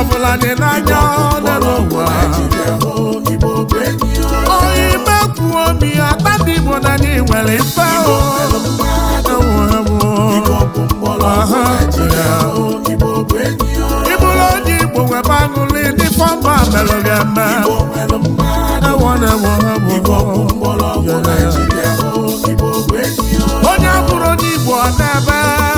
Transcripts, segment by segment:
ọbụla dị n'anya ole n'ụwa onye ime kwuo obi ya tadị igbo na ndị nwere mfe ịbụrụ onye igbo webe aṅụlị ndị fọmba merụ gị eme onye bụrụ onye igbo ọ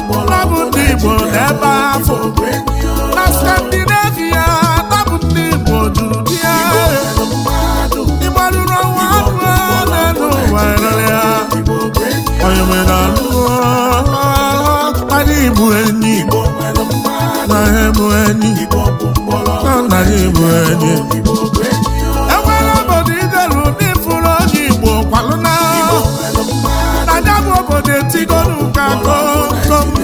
ndị Igbo n'ebe afọ na Skandinavia tabụ ndị Igbo juru ya ndị ọnwa na ụwa rere ya onye nwere anụkpara ọrụ enyi na ha bụ enyi na nna bụ enyi enwere obodo ideru ndị onye Igbo na bụ obodo ka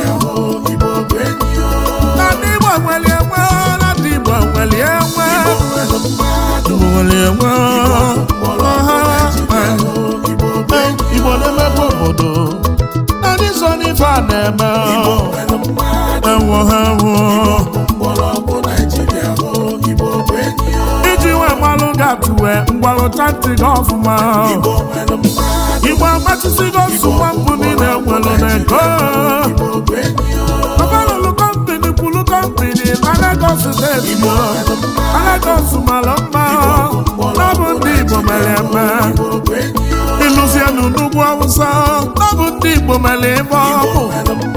gbalụ chanti gị ọfụma igbo agbachisigo nsogbu mbụ niile nwere n'ego ọbalụlụ kwulu na na mara mma ọ ndị igbo mere eme n'ugwu awụsa ọ bụ ndị igbo mere ịbụ.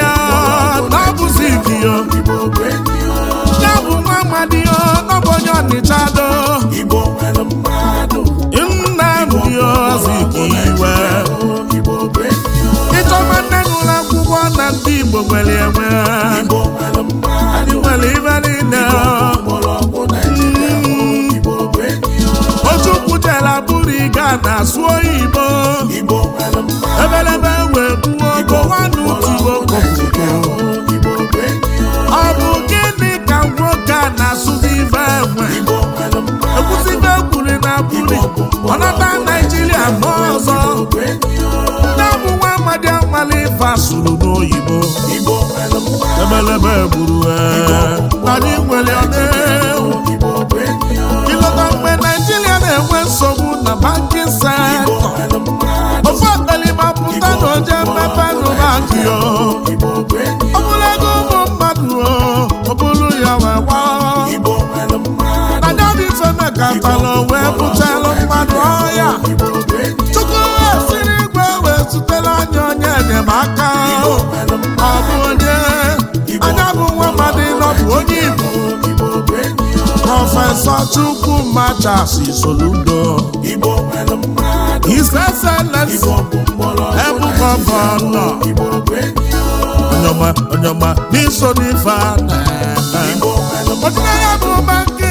adịchado Nnamdi Azikiwe nne n'ụlọ akwụkwọ na ndị Igbo nwere enwe anyị nwere ibe niile mm. bụrụ ịga na ebelebe wee buo Buhari Naijiria mba ọzọ ndị ọbụwa Amadi Anwale ife asụrụ n'oyibo ebelebe gburu anyị nwere ọnewu ilọta mgbe Naijiria na-enwe nsogbu na bankin sektọ ofe akpalima pụta na oje mmepe n'ụlọakụ ya ọ bụla ego ụmụ mmadụ ọ bụrụ ya wee gbaa na katala wee bụtala mmadụ ọhịa chukwu siri igwe wee zutela anyị onye enyemaka ọ bụ onye anya bụ nwa mmadụ nọbụ onye igbo prọfesọ chukwumacha soludo his excellence ebugọbọnọ onyoma onyoma n'iso n'ife ọdịnaya bụ mmadụ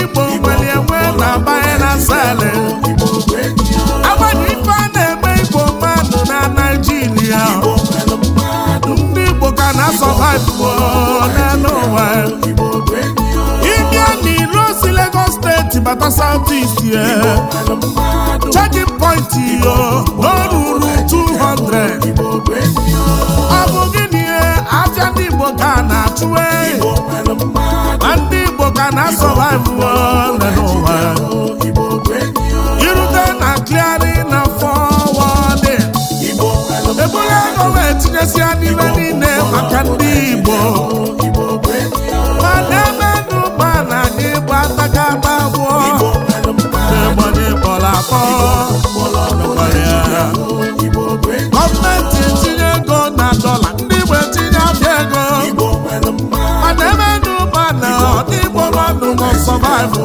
igbo nwere enwe na abanye na ife a na-eme igbo mmadụ na naijiria ndị igbo ka na-asọvaivu n'elu ụwa ịbịa n'ilo Lagos steeti bata South point na ruru 200 ọ eh? ndị ka na-achụ eh? maka na survive n'ụwa irute na kliarị na forwarding ebule ego na-etinyesịa n'ime niile maka ndị Igbo mana ebe n'ụba na n'ịgba atakata abụọ n'ịgbanye kpọrọ akpọ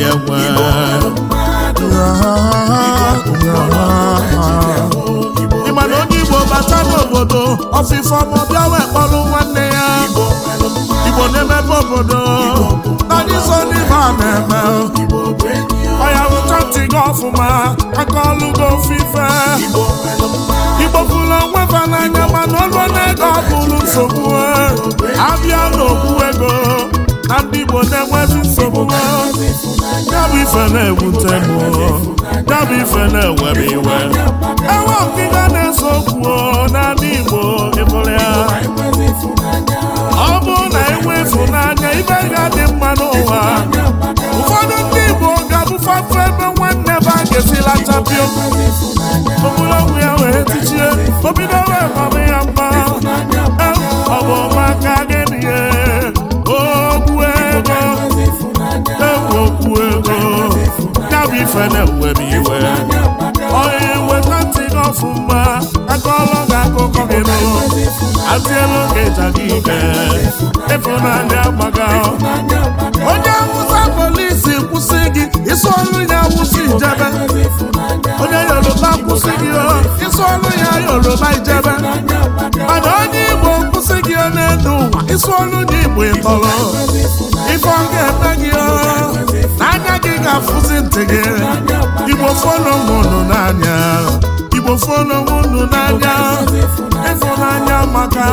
enwe ịma na onye igbo bata n'obodo ọfịfọm ọbịa wee kpọrụ nwanne ya igbo na-emepe obodo nadiso n'ime a na-eme ọya bụ ntị gị ọfụma aka ọlụ gị ofufe igbo pụrụ onwe fa n'anya mana ọlụ na-ego abụrụ nsogbu abịa n'okwu ego na ndị igbo na-enweghị nsogbu ya bụ ife na-ewute m ya bụ ife na-ewe m iwe na-ese okwu n'ala Igbo ịbụrụ ya ọ na enwe ịfụnanya ibe ga-adị mma n'ụwa ụfọdụ ndị Igbo ga-abụfafe ebe nwanne baa a ga-esila chapio ya wee tichie obido wee mama ya mma ọ bụ maka na-adị agbaga onye awụsa polisi kwụsị gị isi ọrụ ya awụsa ijebe onye yoruba kwụsị gị isi ọrụ ya yoruba ijebe mana onye igbo kwụsị gị n'elu ụwa isi ọrụ gị igbo ịtọrọ ịkọ ọ ga-eme gị n'anya gị ga-afụzi ntị gị igbo fọnụ mụnụ n'anya igbo fọnụ mụnụ n'anya ịfụnanya maka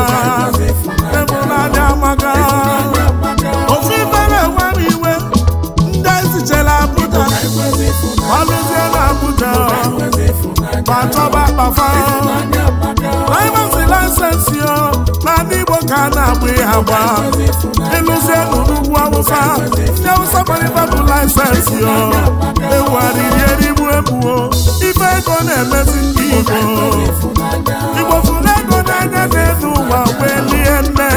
ka a na-agba ihe agba ịlụzie n'ugwu awụsa ndị awụsa gbalịbabụ laịsensị yo ewuharirieribu ebuo ife ego na-emezi ndị igbo igbofuna ego na-enye na elu ụwa wee lie nne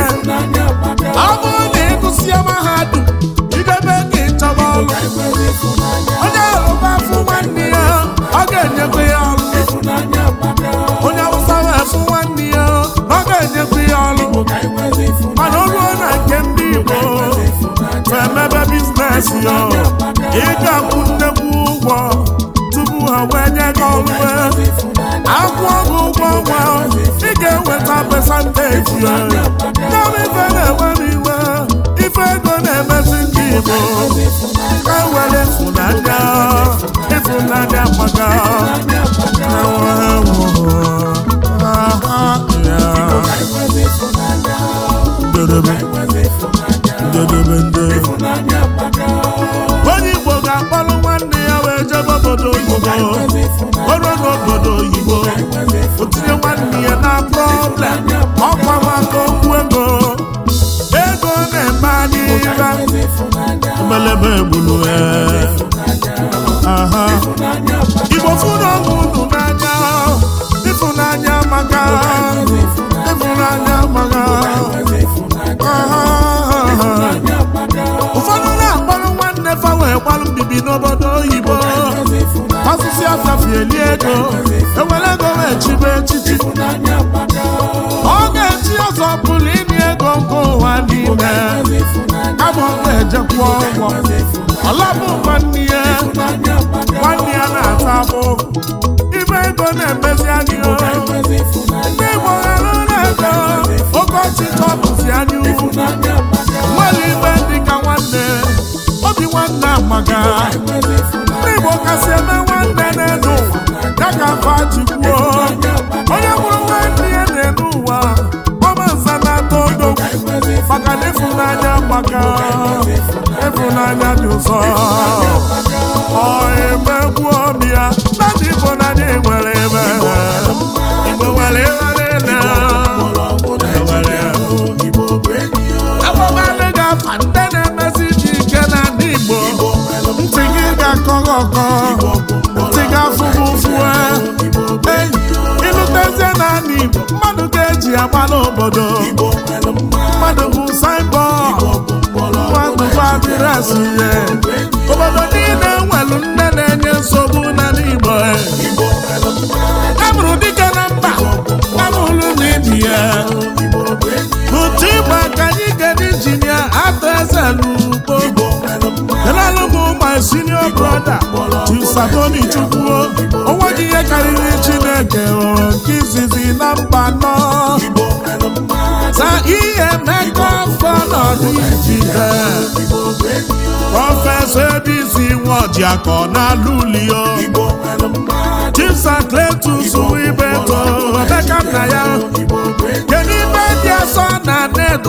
bi n'obodo oyibo osisi ọsafi eli ego ewere ego wee chibe echichi ọ ga-echi ọzọ pụrụ ịnị ego nke ụwa niile ama ọ ga-ejekwa ọgwọ nwanne ya nwanne ya na-ata abụ ibe ego na-emezi anyị ndị Igbo ghara na-ego okochi ka ọ bụzi anyị nwere ibe dị ka nwanne obi nwanne maka ndị Igbo kasị eme nwanne n'elu ya ka fa jikwuo onye mụrụ ndị ya e na n'ụwa ụwa ọmanza na-atọ odogwu maka na ịfụnanya na ịfụnanya dị ụzọ ọ emegbuo ya na ndị Igbo na ndị nwere ebe Igbo nwere ebe ọkọghọkọ tiga fụfụfụ ịnụ tezie naanị mmadụ ga-eji agba n'obodo mmadụ bụ saibọ mmadụ bụ adịresị ya Satoni Chukwu o nweghị ihe karịrị Chineke nke izizi na mba nọ na ihe mmekọ afọ n'ọdịjide prọfesọ Ebisi akọ na Lulio Chibsa Cletus Ibeto na ya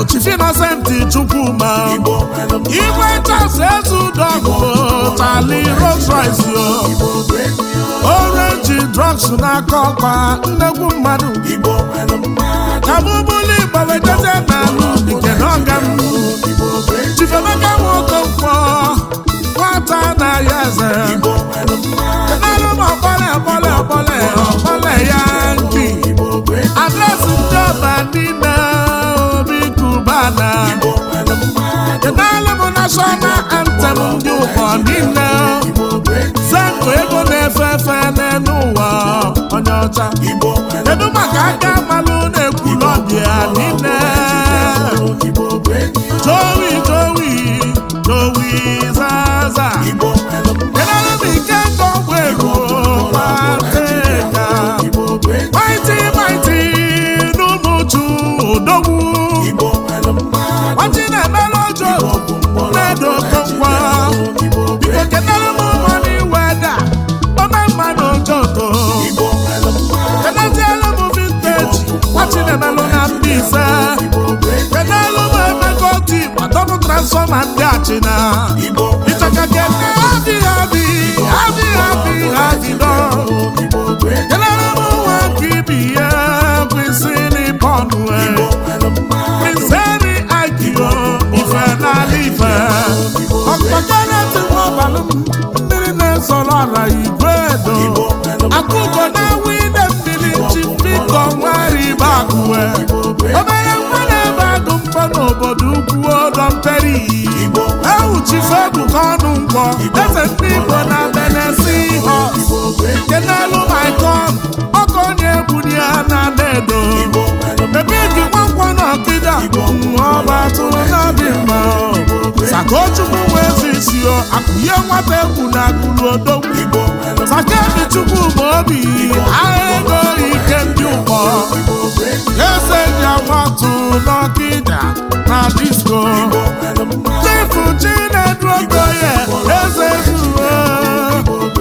Chief Innocent Chukwuma igwe chasị ezudogụ tali Rolls Royce o orange drugs n'aka ọkpa nnegwu mmadụ kabụbụlụ Igbo wejeze n'alụ nke n'ọga m Chief Emeka mkpọ, nwata na-ayọ eze enara m ọkpọle ọkpọle ọkpọle ọkpọle ya nki Adresi ndị ọba niile mmadụ kedaala bụ nashọnal antem ndị ụkọ niile zepụ ego na-efe efe n'elu ụwa onye ọcha kedu maka aka amalụ na-ekwu n'ọdị ya niile jowi jowi jowi zaza kedaala bụ ike ndị ọgwụ ego Mighty, mighty, Maiti more to, no more. nsọ e, e. ma ndị achịna ịchaka abi abi abi abi abi adịdọ kelere m nwa ibi ya kwesị n'ịpọnụ meseri agịgo ife n'ala e. ife ọkpọkọnetịwabalụ mmiri na-ezọrọ ala igwe na-enwe ide mmiri chi mmiri ka ọnwa akụwe obere obodo ugwu ọdọmperi ewuchife ebuka ọnụ nkwọ eze ndị igbo na benesi họs nke n'elu maikon Ọkụ onye egwu ebuli ya na dedo ebe eji nwankwọ na ọkịda ọba tụrụ n'obi mma sakochukwu nwe ezi isi akụnye nwata egwu na akụrụ odogwu sakedi chukwu ma obi aha ego ike ndị ụkọ eze ji agbatụ n'ọkịda na disko Chifu Chinedu Okoye Eze Zuo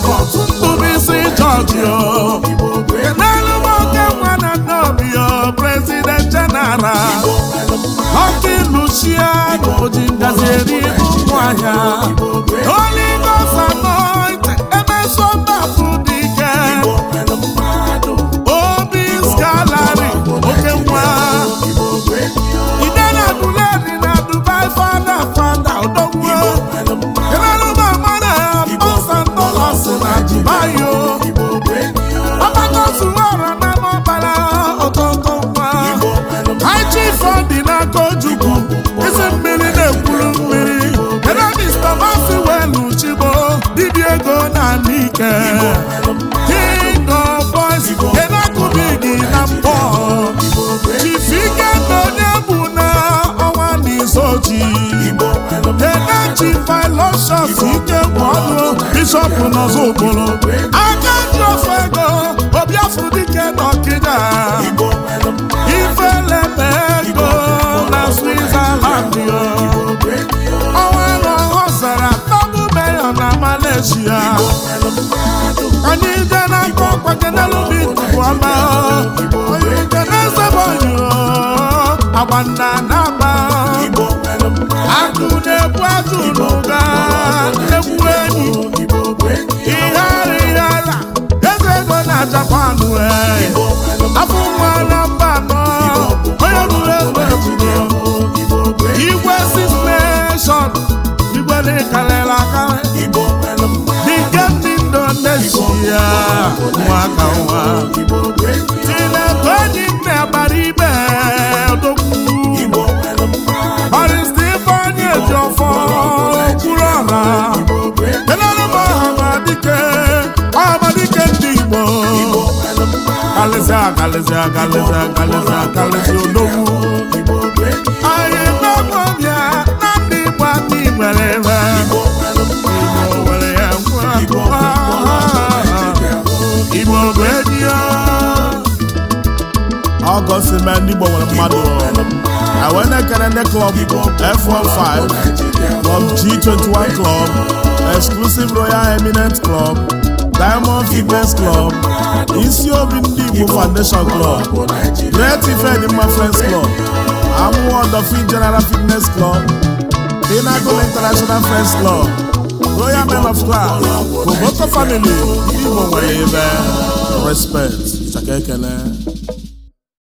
Ntụbụisi George o Kenelu Moke nwana Nnobi o President General Ọkị Luciano ji ngazi eri ụmụahịa Holy nke ojukwu isi mmiri na-ekwuru mmiri ebe mista mafi welu chibo dibịa ego na ike king boys na mbọ chifike na onye bụ na ọnwa n'izoji eneji filoshọs ike bụ ọnụ bishọp nọzọ ogboro aka ndị ofe ego dike n'ezie onye ije na-akpa ọkpaje n'elubi tupu ọma onye ije na-esebe onyo agba nna na-agba akụ na-ebu ajụ n'ụga egwu enyi ihe ara ihe ala eze ego na japan e. afọ nwa na akalịsị akalịsị akalịsị akalịsị odogwu anyị nọgwọbịa na ndị Igbo aka igbere ebe nwere ya ngwa Igbo bụ edi ọgọst na ndị mmadụ awenekere ndị klọb F15 klọb G21 klọb exclusive royal eminent club Diamond Fitness Club, isi obi ndị Igbo Foundation Club, Great Ifedimma Friends Club, Amụwa Odofin General Fitness Club, Pinnacle International Friends Club, Royal Men of Class, Boboto Family, ndị Igbo nwere ebe respect, chaka